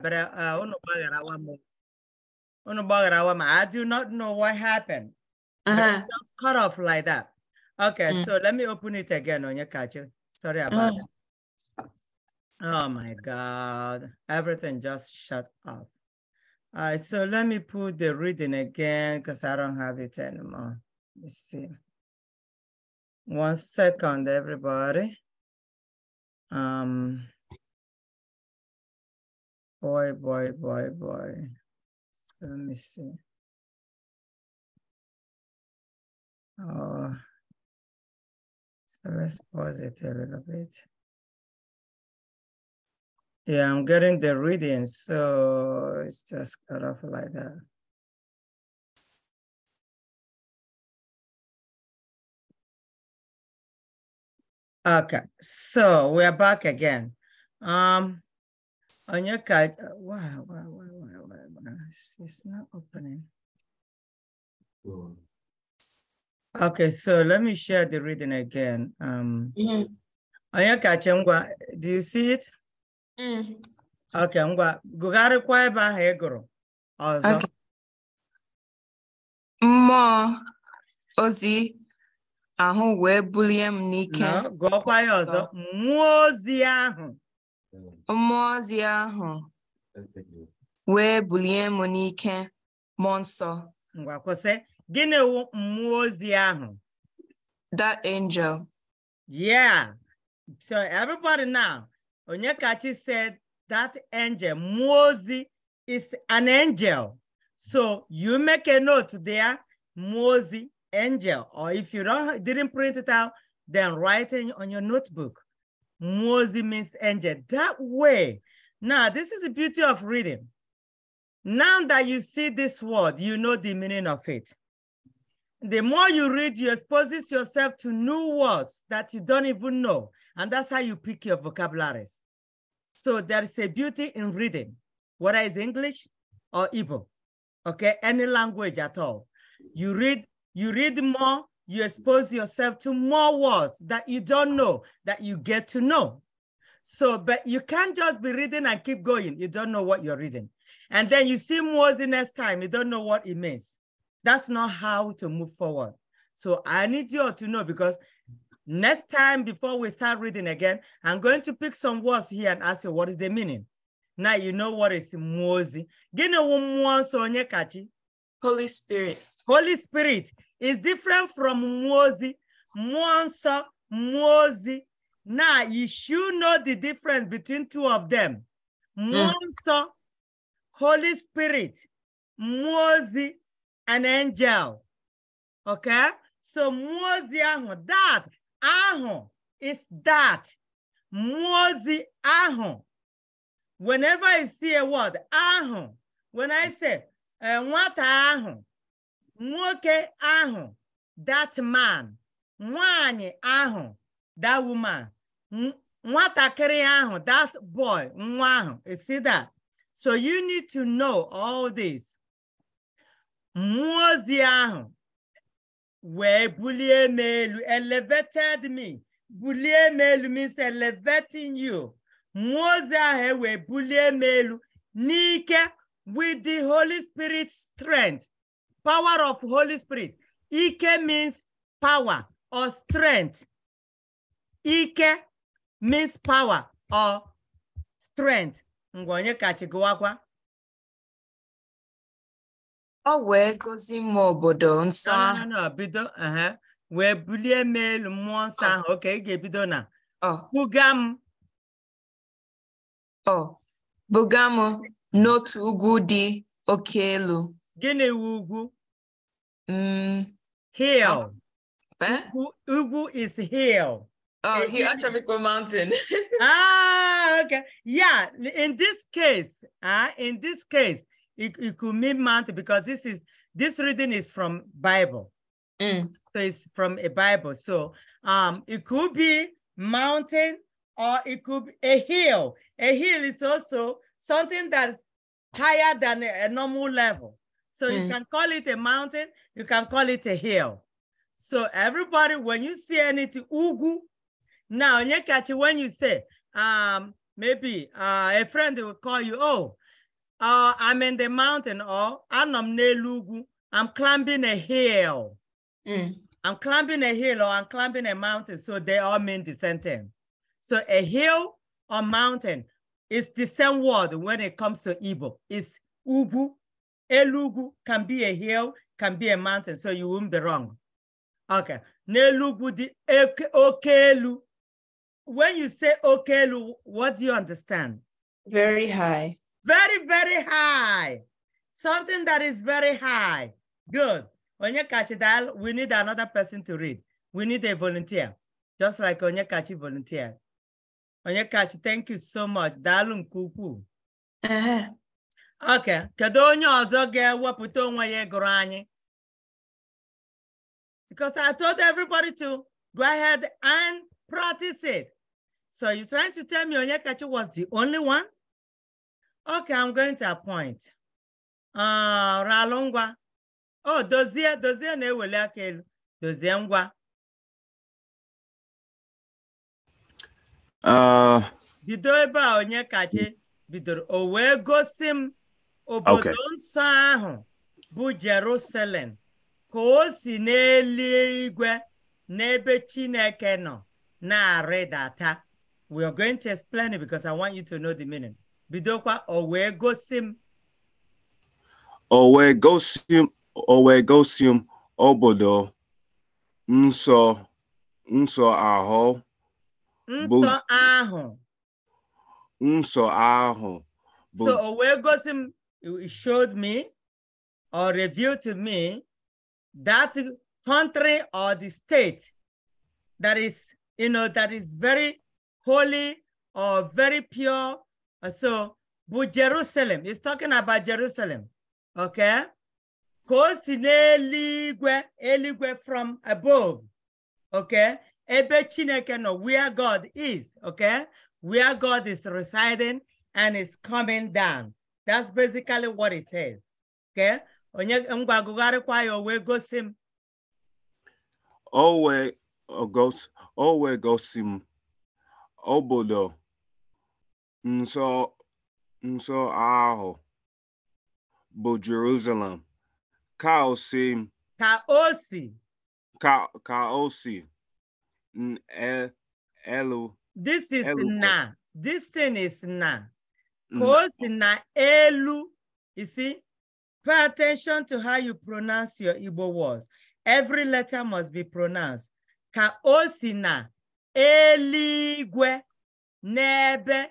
but uh, uh I do not know what happened. Uh-huh. Just cut off like that. Okay, mm. so let me open it again on your catcher. Sorry about oh. that. Oh my God, everything just shut off. All right, so let me put the reading again because I don't have it anymore. Let's see. One second, everybody. Um, Boy, boy, boy, boy. let me see. Oh, so let's pause it a little bit. Yeah, I'm getting the reading, so it's just cut off like that. Okay, so we're back again. Um, On your card. Wow, wow, wow, wow, wow, wow. It's, it's not opening. Okay, so let me share the reading again. Um, mm. On your card, Ngwa, do you see it? Mm. Okay, Ngwa, gụgharịkwa ebe ahụ ị ọzọ. Mmụọ ozi ahụ wee bulie m n'ike. Gụọkwa ya ọzọ, mmụọ ozi ahụ. Mmụọ ozi ahụ wee bulie m n'ike mmụọ nsọ. Ngwa mmụọ ozi ahụ? That angel. Yeah. So everybody now, kachi said that angel, mmụọ ozi is an angel. So you make a note there, mmụọ ozi, angel. Or if you don't didn't print it out, then write it on your notebook. Mozi means angel. That way. Now, this is the beauty of reading. Now that you see this word, you know the meaning of it. The more you read, you expose yourself to new words that you don't even know. And that's how you pick your vocabularies. So there is a beauty in reading, whether it's English or Igbo, okay, any language at all. You read, you read more, you expose yourself to more words that you don't know, that you get to know. So, but you can't just be reading and keep going. You don't know what you're reading. And then you see more the next time, you don't know what it means. That's not how to move forward. So I need you all to know because next time before we start reading again, I'm going to pick some words here and ask you what is the meaning. Now you know what is Mozi. Holy Spirit. Holy Spirit is different from Mwozi, Mwansa, Mwozi. Now, you should know the difference between two of them. Mwansa, mm. Holy Spirit, Mwozi, an angel. Okay? So Mwozi ahu, that ahu is that. Mwozi ahu. Whenever I see a word, ahu, when I say, uh, what ahu, nwoke ahụ that man nwanyị ahụ that woman nwatakịrị ahụ that boy nwa ahụ e see that so you need to know all this mmụọ ozi ahụ wee bulie m elu elevated me bulie m elu means elevating you mmụọ ozi ahụ e wee bulie m elu n'ike with the holy spirit strength power of Holy Spirit. Ike means power or strength. Ike means power or strength. Ngwa onye kachi gụwakwa. Ọ wee gozi m obodo nsọ ahụ. bido wee bulie m elu mmụọ nsọ oh. ahụ. Oke, ị ga-ebido na oh. buga m. Oh. buga n'otu ugwu dị oke elu. Gịnị wu ugwu? Mm. Hill. What? Ugu is hill. Oh, he Achavico Mountain. ah, okay. Yeah, in this case, uh, in this case, it, it could mean mountain because this is this reading is from Bible. Mm. So it's from a Bible. So um it could be mountain or it could be a hill. A hill is also something that's higher than a, a normal level. So mm. you can call it a mountain, you can call it a hill. So everybody, when you see anything, ugu. Now, it, when you say, um, maybe uh, a friend will call you, oh, uh, I'm in the mountain, or I'm I'm climbing a hill. Mm. I'm climbing a hill or I'm climbing a mountain. So they all mean the same thing. So a hill or mountain is the same word when it comes to Igbo. It's ugu Elugu can be a hill, can be a mountain, so you won't be wrong. Okay. Nelugu di okelu. When you say okelu, what do you understand? Very high. Very, very high. Something that is very high. Good. Onyekachi Dal, we need another person to read. We need a volunteer, just like Kachi volunteer. Kachi, thank you so much. Dalum kuku. Uh -huh. oke kedu onye ọzọ ga-ewepụta onwe ya egoro anyị because I told everybody to go ahead and practice it. So you're trying to tell me onye Onyekachi was the only one? Okay, I'm going to appoint. Uh, Oh, Dozie, Dozie na-eweli aka elu. Dozie ngwa. Uh, bido ebe a onye Onyekachi bidoro o wee gosi m obodo nsọ ahụ bụ Jerusalem ka o si n'eluigwe n'ebe Chineke nọ na-arịdata we are going to explain it because I want you to know the meaning bidokwa o wee gosi m o wee gosi m obodo nsọ nsọ ahụ nsọ ahụ nsọ ahụ so o wee gosi m It showed me or revealed to me that country or the state that is, you know, that is very holy or very pure. Uh, so, but Jerusalem, is talking about Jerusalem, okay? Because eligwe, eligwe from above, okay? Ebe chineke no, where God is, okay? Where God is residing and is coming down. that's basically what it says okay onye m gwagụgharịkwa ya o wee gosi m o wee o wee gosi m obodo nsọ nsọ ahụ bụ Jerusalem ka o si m ka o si ka ka o si e, elu this is na this thing is na Mm. ka o na elu you see pay attention to how you pronounce your Igbo words every letter must be pronounced ka osina si na eligwe n'ebe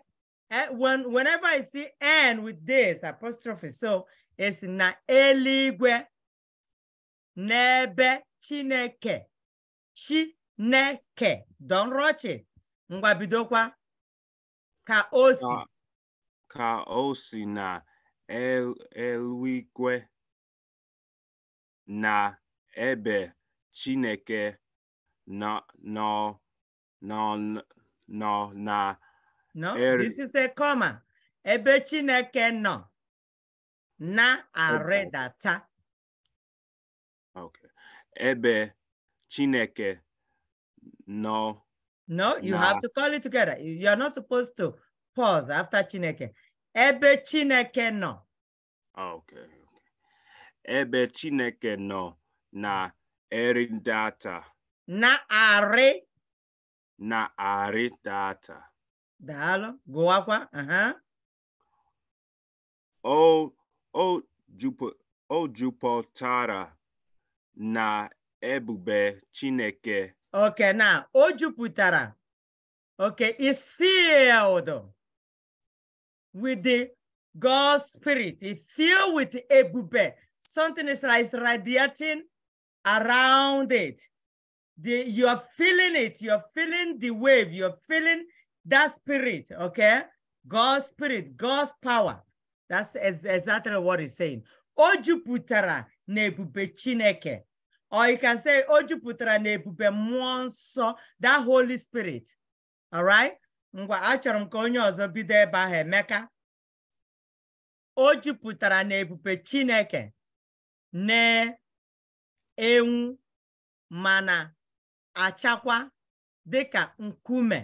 eh, when whenever I see and with this apostrophe so it's na eligwe n'ebe chineke chineke don't rush it ngwa ka ah. osi. ka o si na eluigwe na ebe Chineke nọ nọ na No, this is a comma. Ebe Chineke nọ na-arịdata. Okay. Ebe Chineke nọ. No, you have to call it together. You're not supposed to pause after Chineke. Ebe Chineke nọ. Ah, okay. Ebe Chineke nọ na eri Na-arị. Na-arị data. Daalụ, gụwakwa. O o jupụtara na ebube Chineke. Okay, na o jupụtara. Okay, is filled. with the God's spirit. It filled with ebube. Something is like radiating around it. The, you're feeling it. You're feeling the wave. You're feeling that spirit, okay? God's spirit, God's power. That's ex exactly what he's saying. Ojuputara nebube chineke. Or you can say, Ojuputara nebube monso, that Holy Spirit. All right? ngwa achọrọ m ka onye ọzọ bido ebe ahụ Emeka o jupụtara na ebube Chineke na-enwu mana achakwa dịka nkume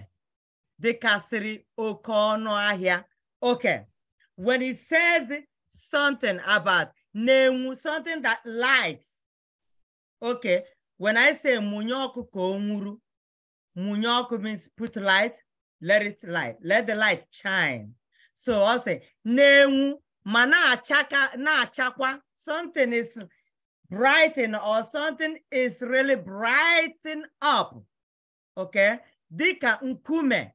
dịkasịrị oke ọnụ ahịa oke when it says something about na-enwu something that lights okay when I say mụnye ọkụ ka o nwuru mụnye ọkụ means put light let it light, let the light shine. So I'll say, Nenwu, mana achaka, na achakwa. Something is brighten or something is really brighten up. Okay? Dika nkume.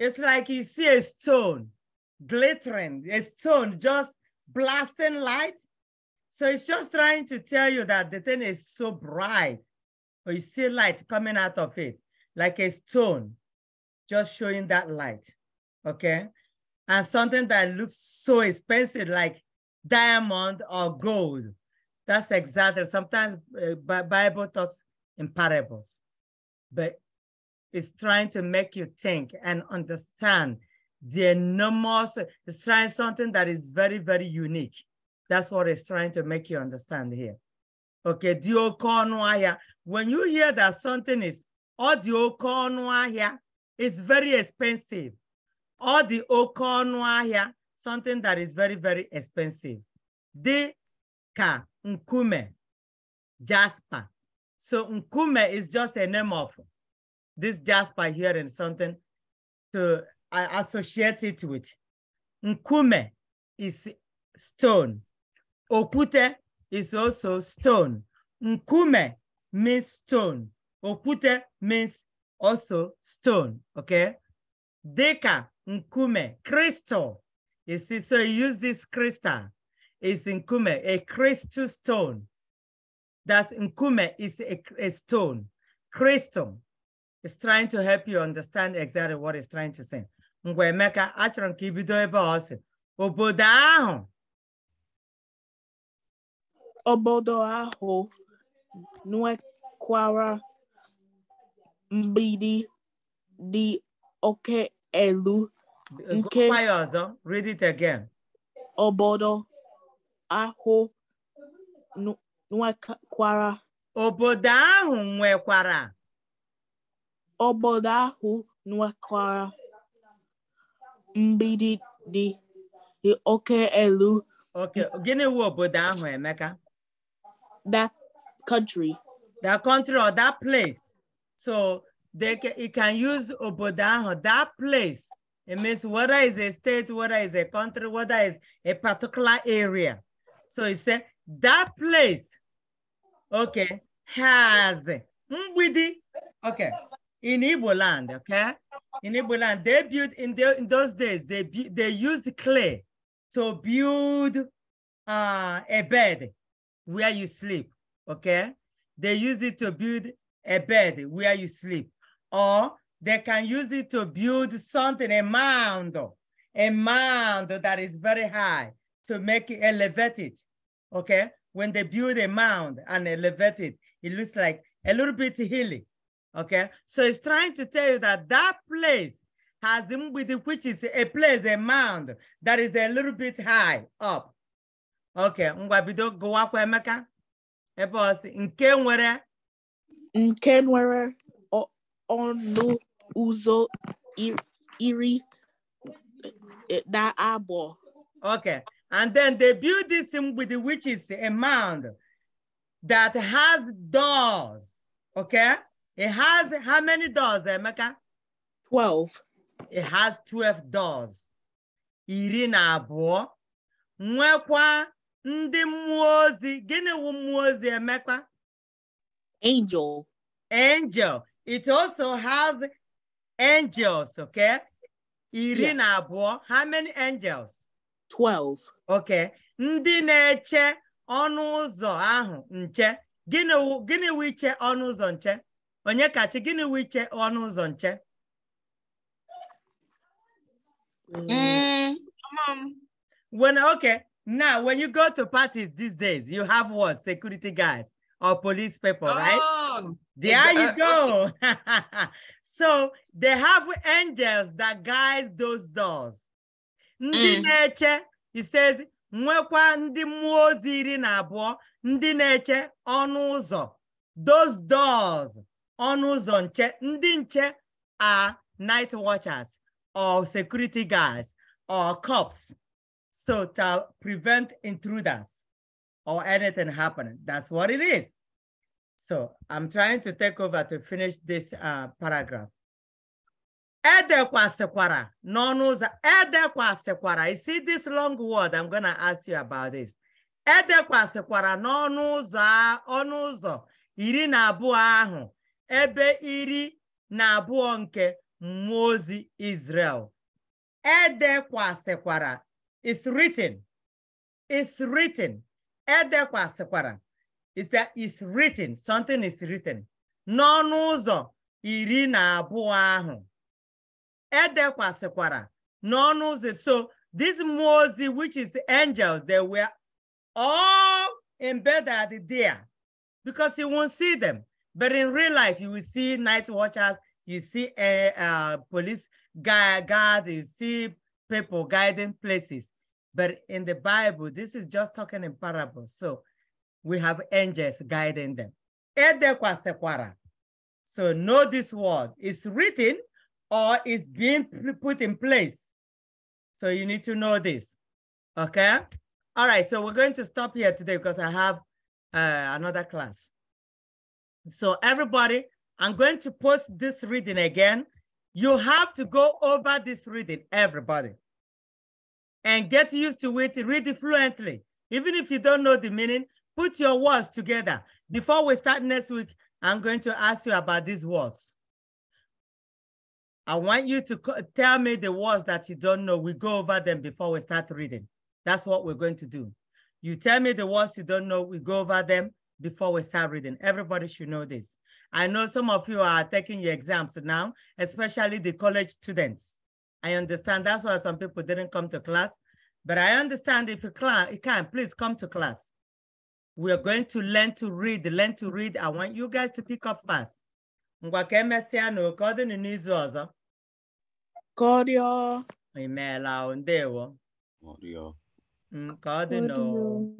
It's like you see a stone glittering, a stone just blasting light. So it's just trying to tell you that the thing is so bright, but you see light coming out of it, like a stone just showing that light, okay? And something that looks so expensive, like diamond or gold, that's exactly, sometimes uh, Bible talks in parables, but it's trying to make you think and understand the enormous, it's trying something that is very, very unique. That's what it's trying to make you understand here. Okay, when you hear that something is, or it's very expensive. All the here, something that is very, very expensive. The ka nkume, jasper. So nkume is just a name of this jasper here and something to I associate it with. Nkume is stone. Okute is also stone. Nkume means stone. Okute means also stone, okay? Deca, nkume, crystal. You see, so you use this crystal. It's nkume, a crystal stone. That's nkume is a, a stone. Crystal is trying to help you understand exactly what it's trying to say. Mgbe Emeka, achọrọ ebe ọ obodo ahụ. Obodo ahụ mgbidi dị oke elu uh, nke ọzọ read it again obodo ahụ nwekwara obodo ahụ nwekwara obodo ahụ nwekwara mgbidi dị oke elu okay gịnị wu obodo ahụ emeka that country that country or that place So they can, it can use Obodanho, that place. It means whether it's a state, whether it's a country, whether it's a particular area. So it said that place, okay, has Mbidi, okay, in Ibo land, okay? In Ibo land, they built in, the, in those days, they, they used clay to build uh, a bed where you sleep, okay? They use it to build a bed where you sleep, or they can use it to build something, a mound, a mound that is very high to make it elevate it. Okay. When they build a mound and elevate it, it looks like a little bit hilly. Okay. So it's trying to tell you that that place has which is a place, a mound that is a little bit high up. Okay. Ngwa go gụwakwa Emeka ebe ọsị nke nwere nke nwere ọnụ ụzọ iri na abo. okay and then they build this with which is a mound that has doors okay it has how many doors emeka 12 it has 12 doors iri na abụọ nwekwa ndị mmụọ ozi wu Angel. Angel. It also has angels, okay? Irina yes. abụọ, how many angels? 12. Okay. Ndị na-eche ọnụ ahụ nche. Gịnị gịnị wiche iche ọnụ ụzọ nche? Onye kachi gịnị wiche iche ọnụ ụzọ nche? Mm. Um, when okay, now when you go to parties these days, you have what? Security guys or police people, oh, right? There you uh, go. so they have angels that guide those doors. Ndị mm. he says, nwekwa ndị mmụọ Ndineche iri ndi Those doors, ọnụ Ndineche nche, ndị nche are night watchers or security guards or cops. So to prevent intruders. or anything happening. That's what it is. So I'm trying to take over to finish this uh, paragraph. Edekwasikwara, n'ọnụ edekwasikwara. You see this long word, I'm gonna ask you about this. Edekwasikwara n'ọnụ ụzọ ọnụ ụzọ iri na abụọ ahụ ebe iri na abụọ nke mmụọ Israel. Edekwasikwara. It's written. It's written. edekwa is that is written something is written n'ọnụ ụzọ iri na abụọ ahụ edekwasịkwara n'ọnụ ụzọ so this mmụọ which is angels they were all embedded there because you won't see them but in real life you will see night watchers you see a eh, eh, police guard you see people guiding places but in the Bible, this is just talking in parables. So we have angels guiding them. So know this word. It's written or it's being put in place. So you need to know this. Okay? All right. So we're going to stop here today because I have uh, another class. So everybody, I'm going to post this reading again. You have to go over this reading, everybody and get used to it, read it fluently. Even if you don't know the meaning, put your words together. Before we start next week, I'm going to ask you about these words. I want you to tell me the words that you don't know. We go over them before we start reading. That's what we're going to do. You tell me the words you don't know, we go over them before we start reading. Everybody should know this. I know some of you are taking your exams now, especially the college students. I understand. That's why some people didn't come to class. But I understand if you, class, you can, please come to class. We are going to learn to read, learn to read. I want you guys to pick up fast. Ngwa ka emesịa na oke ọ dị n'izu ọzọ. Kọrịọ. o, ndewo. ọ n'o.